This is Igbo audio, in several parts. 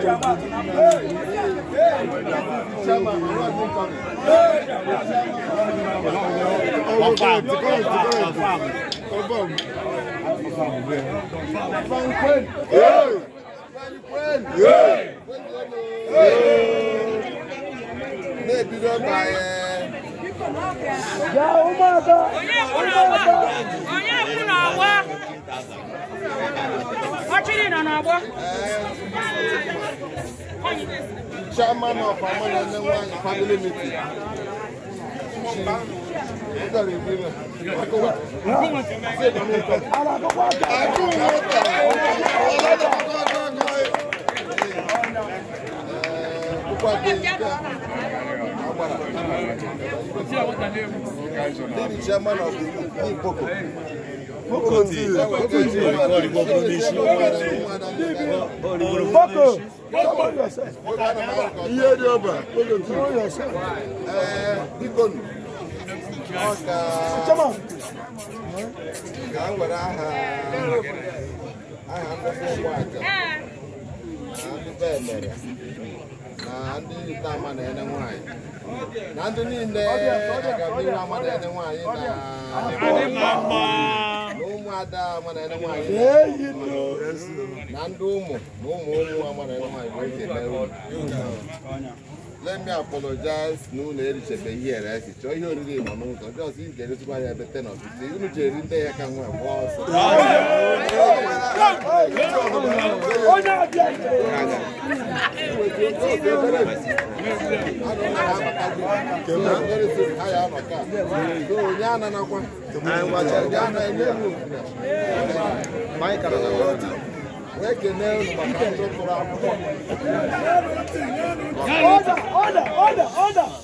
Oh oh Yàwó máa bá! Oyè oh wá! oh kúrò wá! Ọchịrị nọ n'ọgbọ. Chairman of Amana Nenwa family meeting. Chairman of the Ipoko. bokonzi boko ihe dị ọba bikonu ka m were aha aha ndị ụmụaka ndị be emere na ndị ite ama na-ene nwaanyị na ndị niile aga m ire ama na-ene nwaanyị na ada mana ene nwanyị na ndị ụmụ na ụmụ onye nwa mara ene nwanyị let me apologize na ụlọ erichebe ihe ere esichọ ihe oriri nọ n'ụzọ ndị ọzọ iji eresịkwa anya ebe ten of ise unu jeri ndị ya ka nwa gba ọsọ Thank you. Order, order, order, order.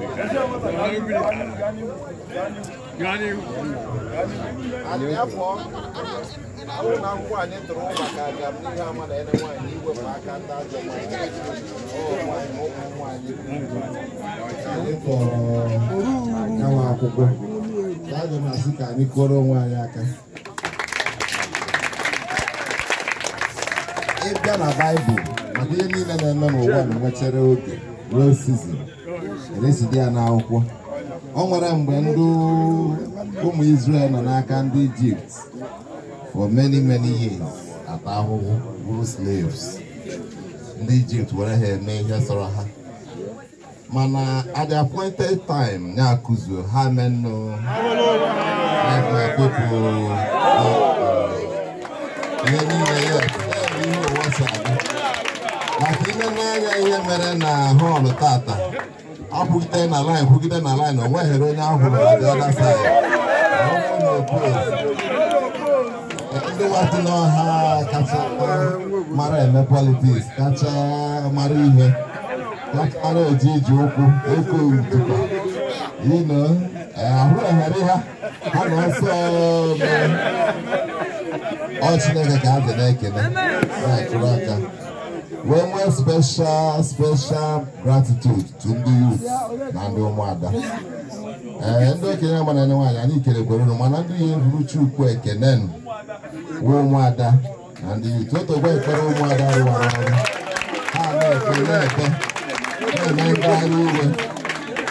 afọ na akwụkwọ anyị tụrụ maka asị ka anyị aka ịbịa na baịbụl maka ihe niile na-eme n'ụwa na nwechara oge ruo sizin residi ya n'akwụkwọ o nwere mgbe ndị ụmụ Israel nọ n'aka ndị Ijipt for many many years ata ahụhụ bụrụ slaves ndị Ijipt were ha eme ihe sọrọ ha mana at the appointed time ya kuzo ha menụ na-ekpepụ uh, ihe niile ya ihe ụwa si aga maka ile n'anya ihe mere na họọlụ tata akwụgide na line kwụgide na line o nweghịrị onye ahụ ndị nwatị n'ọha kacha mara eme politiks kacha mara ihe kpara eji iji ụkwụ oke ntụkwa ino e, ahụ eghere ha ha na ọsọ e, e, ọ Chineke ka a dị na-ekene na-atụrụ aka wee nwee special special gratitude to ndị youth eh, na ụmụada ee ndị okenye agbara ndị anya anyị ikerekwere unu mana ndị ihe bụrụ chukwu ekene wee ụmụada na ndị youth ekpere ụmụada rụwara ọrụ ha na-ekpe na-ekpe na-eme ngagharị iwe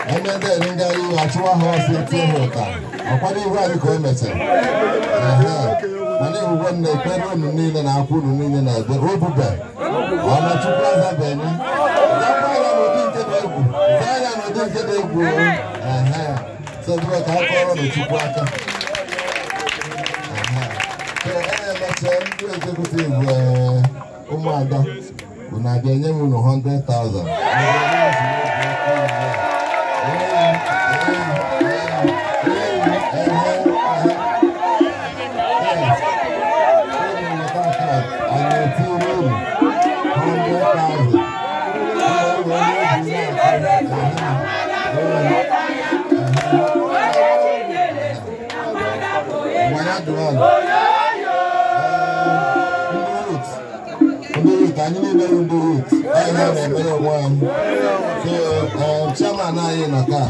e ndị ere ngagharị achụwa ha ọsọ tie ha ụta ọkwado ihu anyị ka o mechara nne ekpere unu niile na akwụ unu niile na ekpere obube ọnụ chukwu azabanye dị egwu nke dị egwu ka na aka e ndị e, ụmụada unu a ga-enye m unu 100,000 dị nwaanyị ndị rut anyị niile bụ ndị anyị na-emere onwe anyị so chairman anyị nọ taa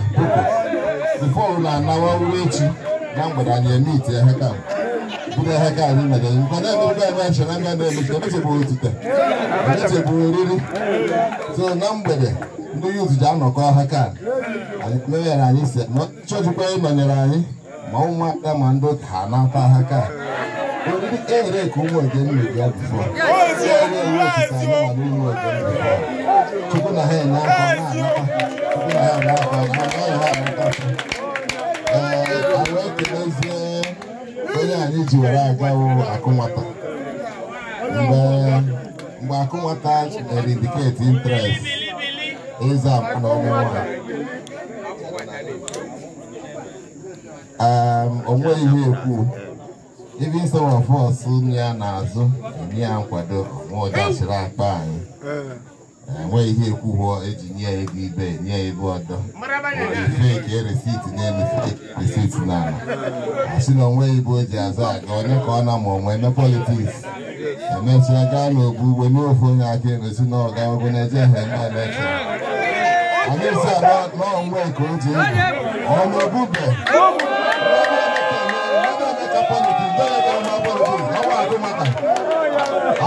bifo na-anawa uwe echi na mgbede anyị eme ite ha ka budo ha ka anyị mere nkwado emebigo anyị achọrọ nga na-emete emetebu otite emetebu oriri so na mgbede ndị yut ji anọkọ ha ka anyị mere anyị si chọjikwa ịnọnyere anyị maumaɗa mando tana fa haka wani duk ere kun wajen mai ya bufo ere wata sani malin wajen bufo tukuna haya na fa na na tukuna haya na fa na na ya na fa awon keleze onye anyị ji were agawo akụnwata mgbe e interest ịza na ọmụmụ Um, onweghị ihe ekwu ibi some of us ya n'azụ enye ya nkwado nwa ọdachiri akpa anyị enweghị eh. e, ihe ekwuo eji nye ya ego ibe nye ya ebe ọdọ nke feki resit n'elu resit n'ala asị na onweghị ibe o ji azụ aga onye ka ọ na ma onwe eme politiks emesịa gaa n'ogbu ugbo n'ofe onye aka erosi na ọga ogo na-eje ha eme elekshọn anyị si ala n'onwe ka o ji ọnụ obube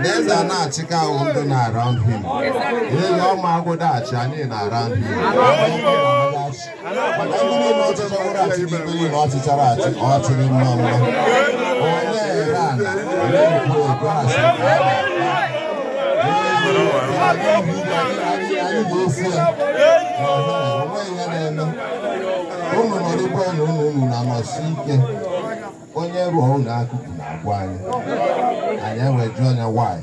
These eze not na women around him. These na my good Achani around him. Every notice of what I think you want to tell us, or to him, Ụmụ ọ na ụmụ na-anọsi ike onye ruo na-akụkụ na-agwa anyị anyị wee jụọ anya nwaanyị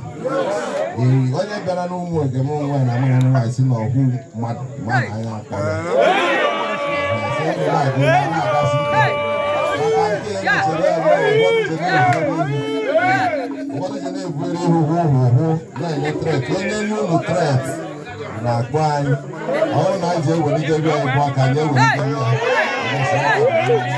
ee onye bịara n'ụmụ egem nwa na amara nwaanyị si na ọhụ mmadụ mmadụ anya akpọrọ ụfọdụ ji na-ebughere ihu hụ hụ hụ na-enye tret onye nye ụlọ tret na-akpọ anyị ọrụ na anyị ji ewelite ebe anyị bụ aka anyị ewelite ya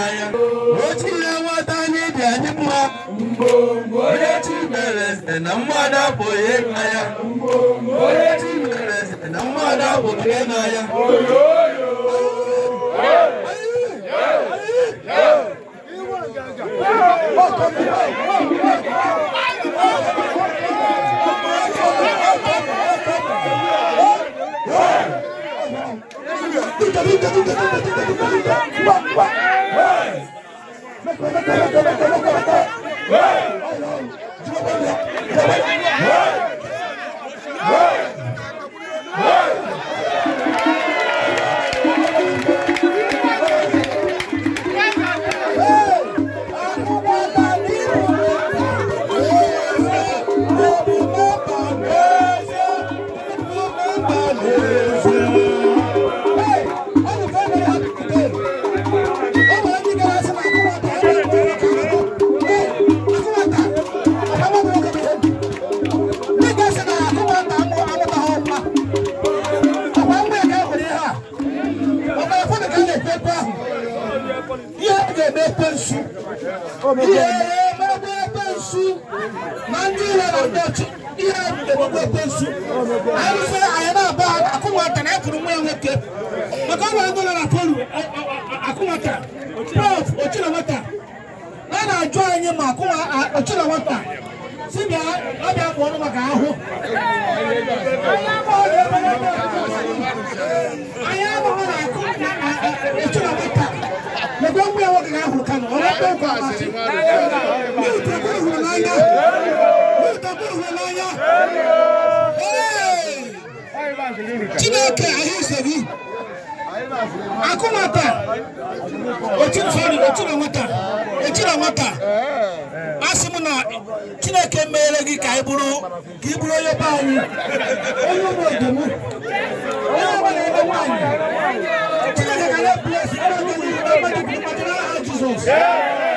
na otu na-enweta anyị dị anyị mma mgbe onye chi na mmadụ abụghị n'anya onye na mmadụ ebe pe nsu ihe ebebe pe nsu na ndị ụlọ na-abịa ọchị ihe ebebe pe nsu arụfe anyị na-aba akụnwata na ekwuru nwa ya nwoke maka ọ nwere dọla na koru akụnwata prof ochirawata a na-ajụ anyị ma akụnwa ochirawata si bịa ọ bịa kpụ ọnụ maka ahụ anyị amaghị na akụ na ochirawata gbogbo ẹwọ kìkà ahùn kanu ọba tó kọ àmà sí mi ò tó kó ìhùn n'anya mi ò tó kó ìhùn n'anya Chineke ahịa isebi akụmata otu nsọrị otu na nwata echi na nwata asị m na Chineke meere gị ka ị bụrụ ka ị bụrụ onye be anyị onye ụmụ odom onye ọbụla ebe nwaanyị Chineke ga na-ebi esi ebe niile Jesus!